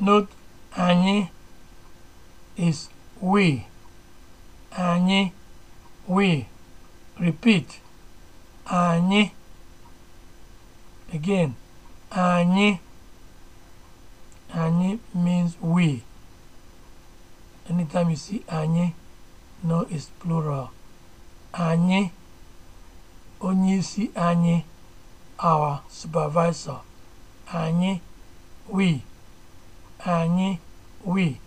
Not anyị is we. Anyị we. Repeat. Anyị. Again. Anyị. Anyị means we. Anytime you see anyị, no is plural. Anyị. Onye isi anyị. Our supervisor. Anyị. We. anyị wii.